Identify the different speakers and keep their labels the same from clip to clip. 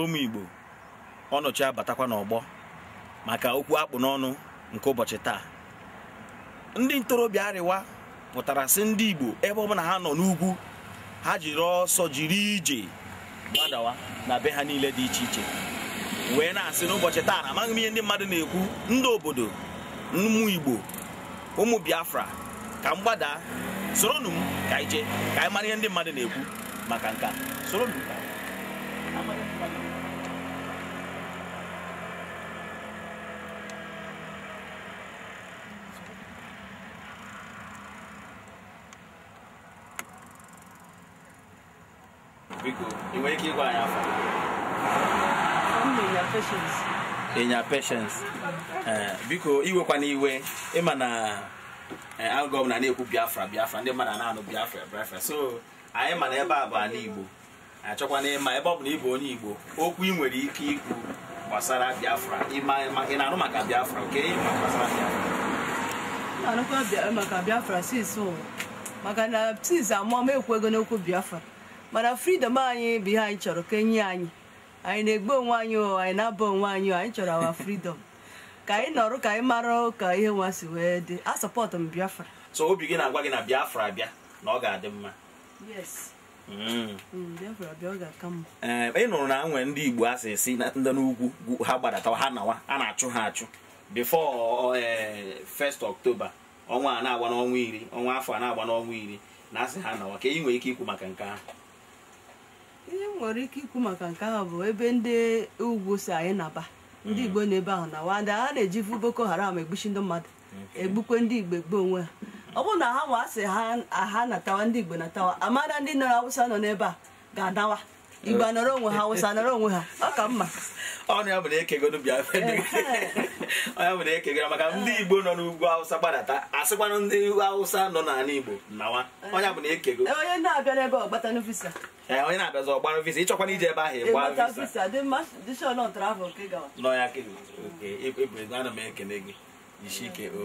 Speaker 1: ụmụ Igbo ọnọchi abatakwa n'ọgbọ maka okwu akpụ n'ọnụ nke ụbọchị taa ndị ntorobịa arịwa pụtara sị ndị Igbo ebe ọbụla ha nọ n'ugwu ha jiri ọsọ jiri ije gbadawa na be ha niile dị iche iche wee na-asị n'ụbọchị taa na amaghị m ihe ndị mmadụ na-ekwu ndị obodo ụmụ Igbo ụmụ Biafra ka m gbadaa soronụ m ka ije ka anyị mara ihe ndị mmadụ na-ekwu maka nka soronụ biko ị ike ịgwa anyị afọ ịnya peshens biko iwekwana iwe ịma na algọm eh, na eh, na-ekwu biafra biafra ndị mmadụ na-anụ biafra biafra so anyị ma na ebe a bụ ala igbo achọkwana ịma ebe ọ bụ na ị bụ onye Igbo okwu ị nwere ike ikwu gbasara Biafra ị na-anụ maka Biafra nke ịma gbasara
Speaker 2: Biafra maka Biafra maka na sis amụọ m ekwego n'okwu Biafra mana fridom anyị bụ ihe anyị chọrọ ka enye anyị anyị na-egbu onwe anyị anyị na-aba onwe anyị anyị chọrọ awa fridom ka anyị nọrọ ka anyị marụ ka ihe nwa si wee dị sọpọtụ m Biafra
Speaker 1: so obi gị na-agwa gị na Biafra bịa na ọ ga-adị mma Mm. Mm, ee eh, ị nụrụ na nwere ndị igbo asị esi ndị n'ugwu ha gbadata ha nawa a na-achụ ha achụ bifo eh, first ọktoba ọnwa a na-agba n'ọnwa iri ọnwa afọ a na-agba n'ọnwa iri na asị ha nawa ka ị e nwere ike ikwu maka nke ahụ
Speaker 2: ihe nwere ike ikwu maka nke ahụ bụ ebe ndị ugwu si anyị naba mm. ndị igbo na ebe ahụ nawa ndị a na-eji vu boko haram egbuchi ndị mmadụ egbukwe ndị igbo egbu onwe ha ọ bụrụ na ha nwa asị ha aha natawa ndị Igbo natawa amara ndị nọrọ Awụsa nọ n'ebe a ga-adawa Igbo nọrọ onwe ha Awụsa nọrọ onwe ha ọ ka mma
Speaker 1: ọnụ ya bụ na ekegoro bịa onye bụ na ekegoro maka ndị Igbo nọ n'ugwu Awụsa gbadata asịkwanụ ndị Awụsa nọ n'ala Igbo nawa onye bụ na
Speaker 2: ekego onye na-abịa n'ebe ọgbatanụ visa
Speaker 1: onye na-abịazi ọgbara visa ịchọkwana ije ebe ahụ ịgba
Speaker 2: visa
Speaker 1: nọ ya ana m ekele gị isike o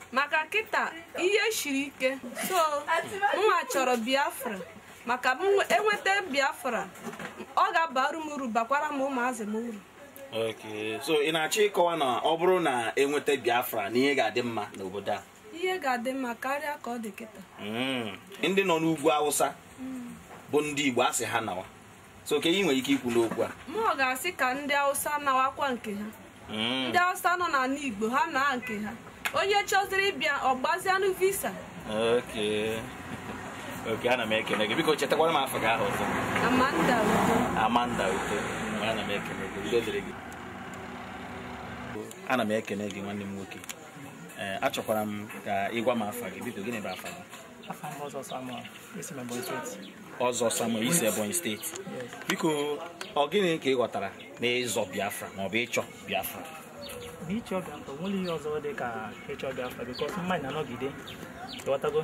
Speaker 2: maka kịta ihe shiri ike so nwa chọrọ biafra maka m enweta e biafra ọ ga-abara m uru bakwara m ụmụazị m uru
Speaker 1: so ị na-achọ ịkọwa na ọ bụrụ na enweta biafra na ihe ga-adị mma n'obodo a
Speaker 2: ihe ga-adị mma karịa ka ọ dị kịta
Speaker 1: hmm, ndị nọ n'ugwu awụsa bụ ndị igbo asị ha nawa so ka ị nwere ike ikwu n'okwu a
Speaker 2: m ga-asị ka ndị awụsa nawakwa nke ha hmm. ndị awụsa nọ n'ala igbo ha naa nke ha onye chọziri ịbịa ọgbazianụ visa
Speaker 1: oke ana m ekene gị biko chetakwara m afọ gị ahụ ọzọ
Speaker 2: amanda uto
Speaker 1: amanda uto ana m ekene gị ana m ekene gị nwanne m nwoke eh, achọkwara m ka ị gwa m afa gị biko gịnị bụ afa gị ọzọ samuel isi ebonyi steeti biko ọ gịnị ka ị ghọtara n'ịzọ biafra maọbụ ịchọ biafra
Speaker 2: na ịchọ Biafra nwere ihe ọzọ dị ka ịchọ Biafra bikọs mmadụ na-anọgide ịghọtago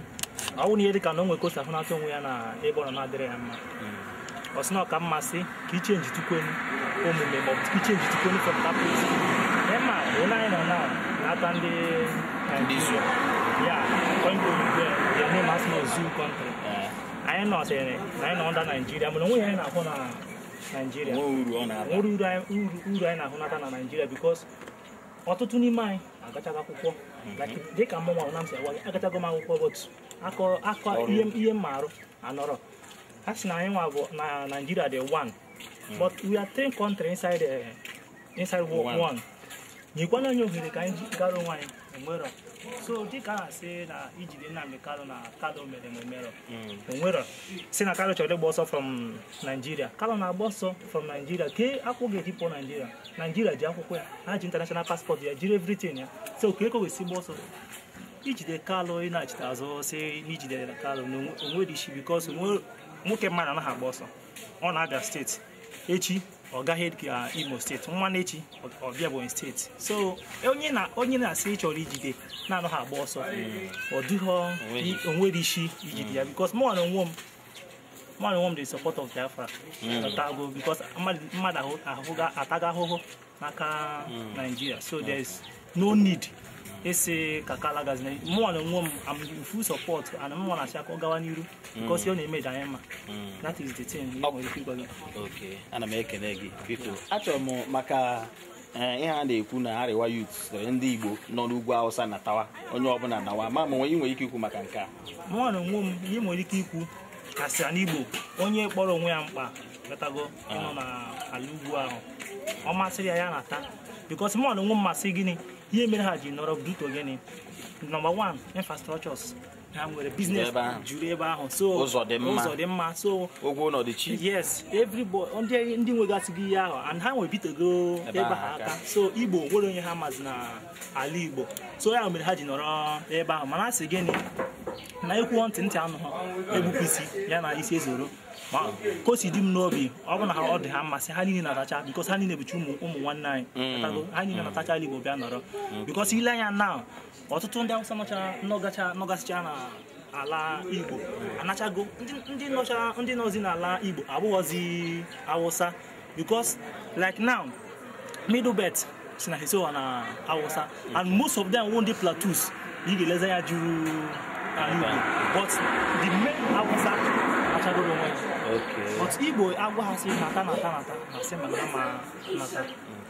Speaker 2: ọ bụrụ na ihe dị na onwe nwere kosa ahụnata onwe ya na ebe ọ na-adịrị ya mma ọ sị na ọka mmasị ka ichenji tukwenu omume maọbụ ichenji tukwenu fọpụtapụt ema onye anyị nọ na na-ata ndị ya onye ya na asị na ozu kọntrị anyị nọsịrị na anyị nọ nda naijiria mana onwe ya anyị na-ahụ na naijiria nwere uru anyị na-ahụ na naijiria bikos ọtụtụ n'ime anyị agụchago akwụkwọ mhm. dịka mụnwa na m si agwa m akwụkwọ bọtụ akọ akọ ihe m marụ anọrọ a sị na anyị nwa bụ na naijiria dị one mhm. but we are three country inside, uh, inside one nyekwana anyị ohere ka anyị gara onwe anyị enwerọ so dịka a si na ijide Nnamdi kalụ na Kanu mere merọ onwero si na Kanu chọrọ ịgba ọsọ from Nigeria Kanu na-agba ọsọ from Nigeria kee akwụghị eji pụọ Nigeria Nigeria ji akwụkwọ ya ha ji international passport ya jiri everything ya so ka eko wesi gba ọsọ ijide kalụ ị na-achịta azụ si na ijidere Kanu na onwere isi because nwoke mmadụ anaghị agba ọsọ ọ na-abịa steeti echi Ọ gaghị ọgaghị uh, Imo steeti nwanne echi ọbịa Ebonyi steeti so onye na onye na-asị ịchọrọ ijide na-anọghị agba ọsọ mm. ọ dịghọ onwe onwere isi ijide ya mm. bikos mụ na onwe m mmadụ nwe m dị support of Biafra mm. tago bikos mmadụ ahụga ataga ahụhụ n'aka Naijiria so there is no need isi ka kala gaziri mụnwa na onwe m am full support and mmụọ na asị aka ọ gawa n'iru mm. because ọ na-eme ji anyị mma that is the thing nwere ike ịgwa gị ana m
Speaker 1: ekele gị biko achọrọ m maka eh, ihe a na-ekwu na arịwa youth ndị igbo nọ n'ugwu awụsa na tawa onye ọbụla nawa ma ma nwere ike ikwu maka nke a
Speaker 2: mụnwa na onwe m ihe nwere ike ikwu kasịa n'igbo onye kpọrọ onwe ya mkpa gatago ịnọ ah. na ala ugwu ahụ ọ masịrị ya ya na-ata bikos mọlụ nwe mmasị gịnị ihe mere ha ji nọrọ buto gịnị nọmba wan infrastructures ha nwere biznes juru ebe ahụ so ụzọ dị
Speaker 1: mma so ụgwọ ụlọ dị chi
Speaker 2: yes everybody ndị nwegasịghị ihe ahụ and ha nwere bitego ebe ha aka so igbo nwere onye ha mazi na ala igbo so ya mere ha ji nọrọ ebe ahụ mana a sị gịnị na ekwu ntị ntị anụ ha egbupụ isi ya na isi ezoro ka o si dị m n'obi ọ bụ na ha ọ dị ha mmasị ha niile n'atacha atacha bikos ha niile bụcha ụmụ nwanne anyị ha niile n'atacha atacha igbo bịa nọrọ bikos ile anya na ọtụtụ ndị awụsa n'ọcha n'ọgacha nọgasịcha na ala igbo anachago ndị nọzi n'ala igbo abụghọzi awụsa bikos like now middle belt si na hesowa oh, na awụsa uh. and most of them wụ ndị platus ị ga-eleze ya juru uh, ala igbo but the main awụsa achagoro onwe ya but igbo agwa ha si nata nata nata na sị mana ma nata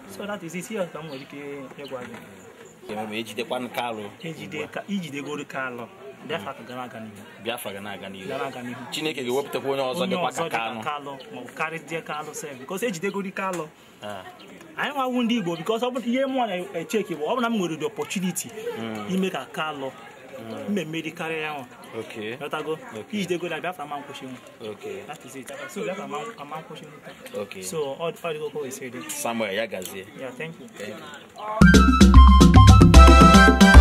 Speaker 2: so that is it here ka m nwere ike ịgwa gị
Speaker 1: ejidekwa nke e alụ ijidegoro e ka e alụ biafra ka gara aga n'ihu biafra ga na-aga n'ihu chineke ga-ewepụtakwa onye ọzọ dịkwa ka kalụ
Speaker 2: maọbụ karịdịa kalụ sef bikos ejidegori kalụ ah. anyị awụ ndị igbo bikos ọ bụ ihe mụnwa na-echeki bụ ọ bụ na m nwere the opportunity hmm. ime ka kalụ mm. maybe carry on. Okay. Not go. Okay. Each day go like that, I'm pushing. Okay. That is it. So that I'm I'm pushing. Okay. So all all the go is ready. Somewhere, yeah, guys. Yeah. Thank you. Thank you.